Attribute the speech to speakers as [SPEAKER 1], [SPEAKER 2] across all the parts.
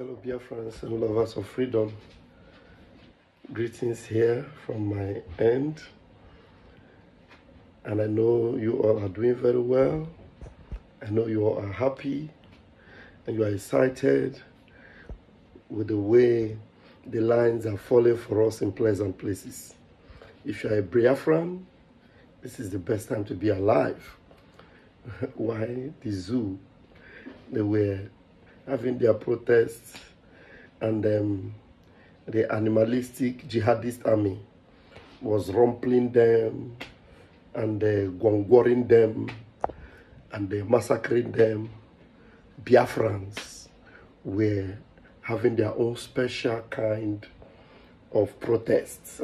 [SPEAKER 1] Hello, dear friends and lovers of freedom. Greetings here from my end. And I know you all are doing very well. I know you all are happy and you are excited with the way the lines are falling for us in pleasant places. If you are a Biafran, this is the best time to be alive. Why the zoo? They were having their protests and um, the animalistic jihadist army was rumpling them and uh, gongoring them and uh, massacring them. Biafrans were having their own special kind of protests.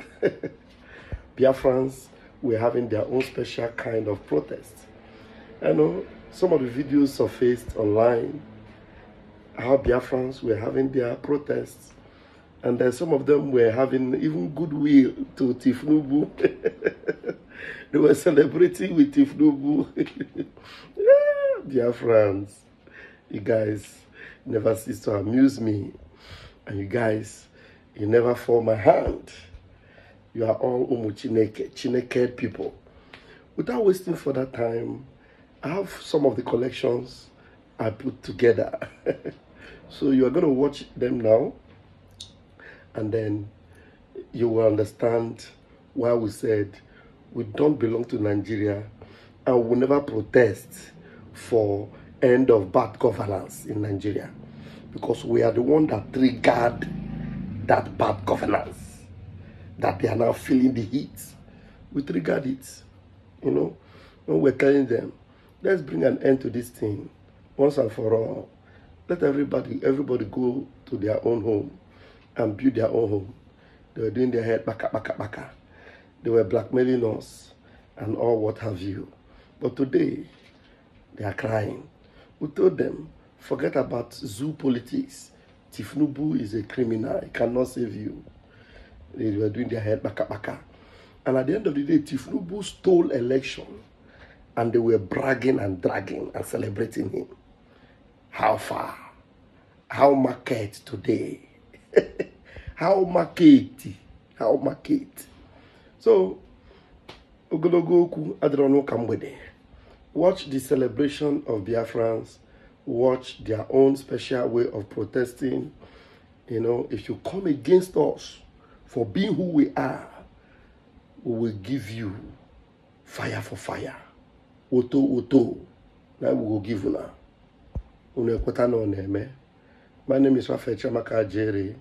[SPEAKER 1] Biafrans were having their own special kind of protests. I know some of the videos surfaced online how Biafrans were having their protests. And then some of them were having even goodwill to Tifnubu. they were celebrating with Tifnubu. Dear friends, you guys never cease to amuse me. And you guys, you never fall my hand. You are all Umuchineke, Chineke people. Without wasting further time, I have some of the collections I put together. So you are going to watch them now, and then you will understand why we said we don't belong to Nigeria and we will never protest for end of bad governance in Nigeria because we are the one that triggered that bad governance that they are now feeling the heat. We triggered it, you know, when we're telling them, let's bring an end to this thing once and for all. Let everybody everybody go to their own home and build their own home. They were doing their head baka baka baka. They were blackmailing us and all what have you. But today they are crying. We told them, forget about zoo politics. Tifnubu is a criminal, he cannot save you. They were doing their head baka baka. And at the end of the day, Tifnubu stole election and they were bragging and dragging and celebrating him. How far? how market today how market how market so ogologo okwu kambede watch the celebration of biafrans watch their own special way of protesting you know if you come against us for being who we are we will give you fire for fire oto oto na we go give you unu ekweta my name is Rafael Chamaka Jerry,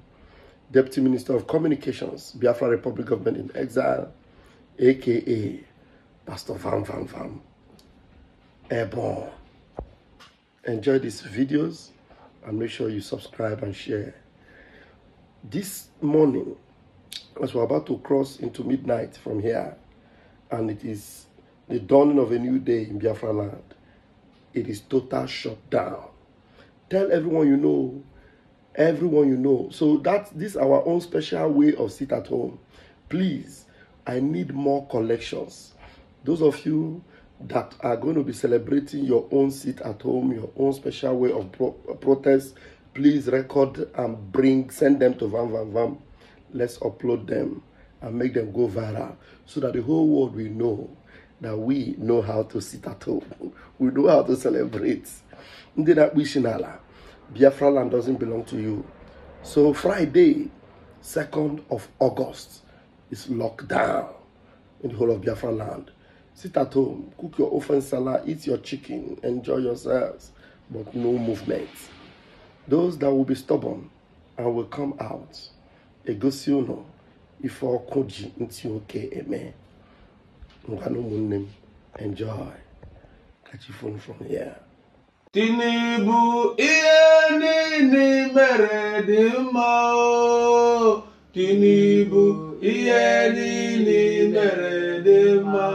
[SPEAKER 1] Deputy Minister of Communications, Biafra Republic Government in Exile, aka Pastor Van Van Van Airborne. Enjoy these videos and make sure you subscribe and share. This morning, as we're about to cross into midnight from here, and it is the dawning of a new day in Biafra land, it is total shutdown. Tell everyone you know everyone you know. So that this our own special way of sit at home. Please, I need more collections. Those of you that are going to be celebrating your own sit at home, your own special way of pro protest, please record and bring, send them to Van Van Van. Let's upload them and make them go viral so that the whole world will know that we know how to sit at home. We know how to celebrate. Ndina, na Biafra land doesn't belong to you. So Friday, 2nd of August, is lockdown in the whole of Biafra land. Sit at home, cook your open salad, eat your chicken, enjoy yourselves, but no movement. Those that will be stubborn and will come out, egosi unu ife ọkụ ji ntị oke eme. Ngwanụ ụmụnne m, enjoy. Catch you phone from here. Tinubu
[SPEAKER 2] ihe niile mere dị mma o Tinubu ihe niile mere dị mma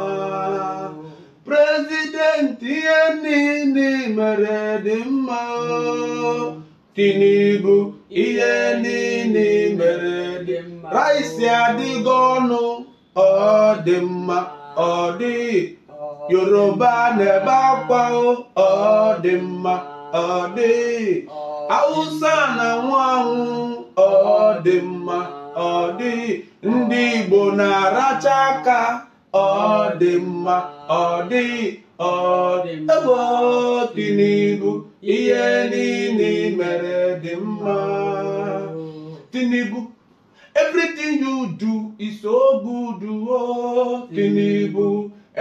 [SPEAKER 2] prezidenti ihe niile mere dị mma o Tinubu ihe niile mere dị mma raisi adịgo ọnụ ọ dị mma ọ dị yoruba na-ebe akwa ọ dị mma ọ dị awụsa na nwa anwụ ọ dị mma ọ dị ndị igbo na-aracha aka ọ dị mma ọ dị ọ dị ebe ihe niile mere dị mma tinubu everything you do is so good o tinubu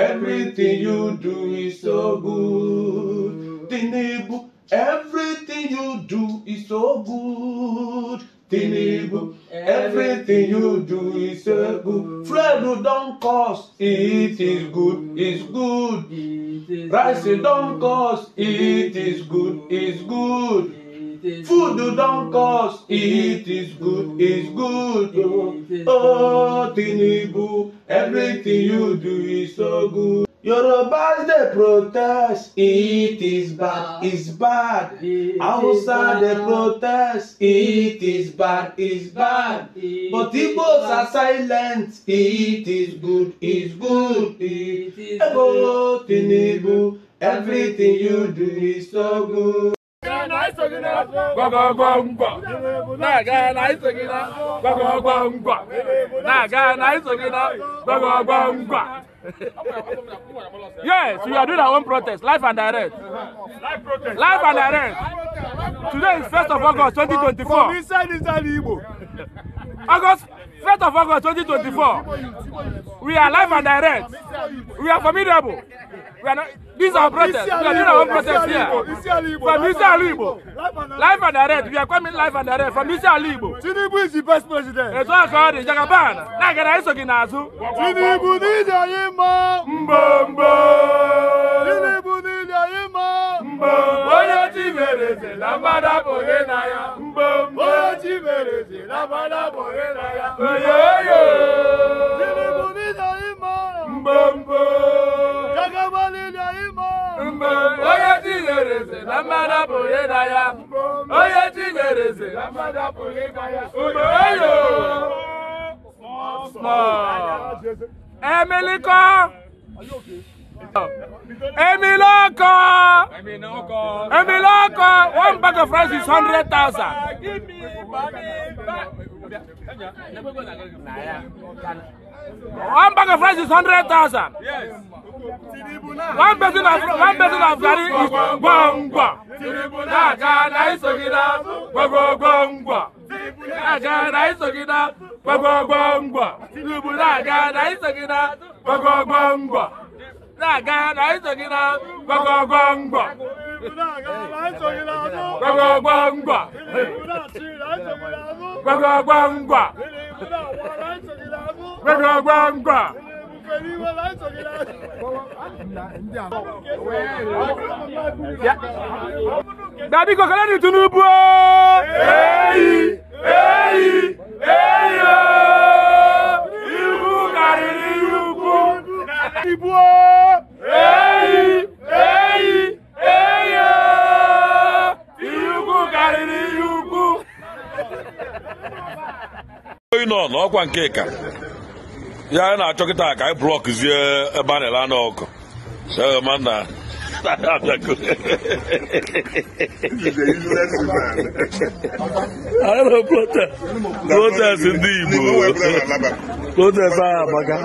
[SPEAKER 2] Everything you do is so good. Tinibu. everything you do is so good. Tinibu. everything you do is so good. Fredo, don't cause cost, is good, it's good. Rice, don't cause it is good, it's good. Food don't cost, it is good, it's good. Oh, oh Tinibu, everything you do is so good. Yorubas dey protest, it is bad, it's bad. Hausa dey protest, it is bad, it's bad. But Igbos are silent, it is good, it's good. Ebo Tinibu, everything you do is so good yes we are doing our own protest live and direct live protest live and direct
[SPEAKER 3] today is first of august 2024 from
[SPEAKER 2] inside inside igbo august 1st of August 2024. We are live and direct. We are formidable. We are not, these are protests. We are doing our own protest here. From Mr. Alibo. Live and direct. We are coming live and direct from Mr. Alibo. Tinubu is the best president. It's all called the
[SPEAKER 3] Jagaban. Now get a history in Azu.
[SPEAKER 2] Tinubu ni ilé ayé mọ́. Tinubu ni ilé ayé mọ́ chimereze lambada bore na ya mbombo chimereze lambada bore na ya oyoyo jilibubiza ima mbombo kakabalida ima mbombo oye chimereze lambada bore na ya mbombo oye chimereze lambada bore na ya oyoyo small small
[SPEAKER 3] emiliko.
[SPEAKER 2] Are you okay? Emiloko, Emiloko. kọ. One bag of rice is hundred thousand. One bag of rice is hundred thousand. Yes. One person of one person of gari is gbọ̀ngbọ̀. Tinubu náà ga na isogida gbọ̀gbọ̀gbọ̀ngbọ̀
[SPEAKER 3] na-aga na isoghị na gbagọgbọ mgbọ gbagọgbọ mgbọ
[SPEAKER 2] gbagọgbọ mgbọ gbagọgbọ mgbọ dabi kokole ni Tinubu o. eyi eyi eyi o ibu karịrị ibu. ibu o.
[SPEAKER 3] nọ n'ọkwa nke ka ya na-achọ kịta ka anyị blọkzie ebe a na-ele anụ protest ndị Igbo protest ahụ maka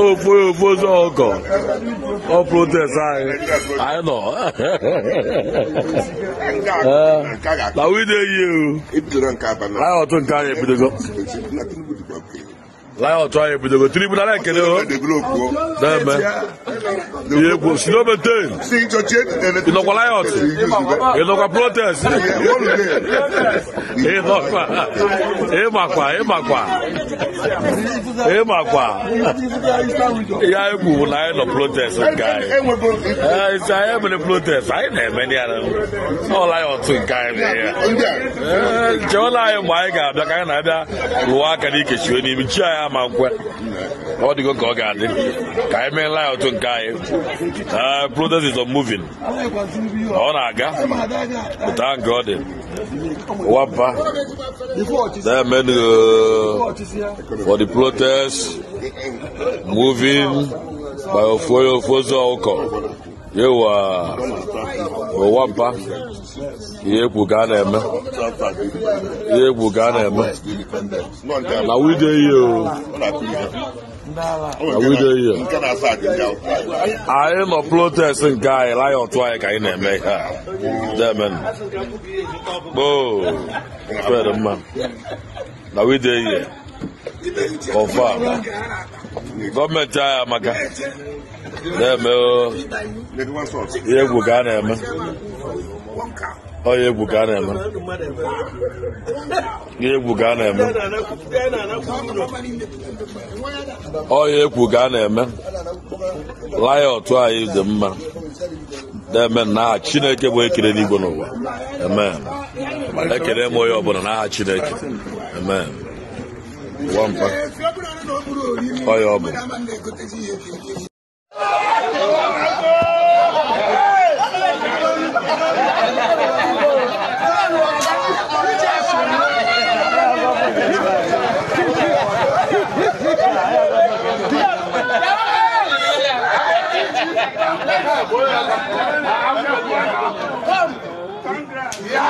[SPEAKER 3] ofo ofozu ọkọ ọ protest anyị anyị nọ na wide yi ewu anyị ọtụ nke anyị ebidogo layout anyị ebidogo tinubu nara ekele na-eme ihe egwu si ịnọkwa layout ịnọkwa protest ịnọkwa ịmakwa ya egwu na anyị nọ protest nke anyị
[SPEAKER 2] anyị
[SPEAKER 3] emere protest anyị na-eme ya ọ anyị mgbe anyị ga-abịa ka anyị na-abịa rụwa aka n'ikechiwe n'ime chi anyị ama nkwe ọ dịgo ka ọ ga-adị ka anyị mee nlaya otu nke anyị protest is moving ọ na-aga pụta nke ọ dị wapa na uh, for the protest moving by ofuoye ofuozu ọkọ yewa ụwa mpa ihe egwu ga na-eme ihe egwu ga na-eme na wido ihe o na wido ihe anyị nọ protest nke anyị laghị otu anyị ka anyị na-eme ihe a demen
[SPEAKER 2] kpoo fere mma
[SPEAKER 3] na wido ihe confam gọọmenti anyị amaka na-eme egwu ga na-eme ọya egwu ga na-eme ihe egwu ga na-eme ọya egwu ga na-eme otu anyị dị mma na-eme n'aha chineke bụ ekele n'igwe n'ụwa amen ekele m onye ọbụla n'aha chineke amen
[SPEAKER 2] ọya ọ bụ 뭐야?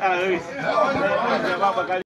[SPEAKER 2] Ah oui.